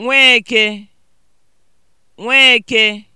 Nweke Nweke